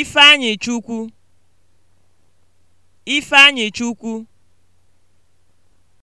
Ifeanyịchukwu Ifeanyịchukwu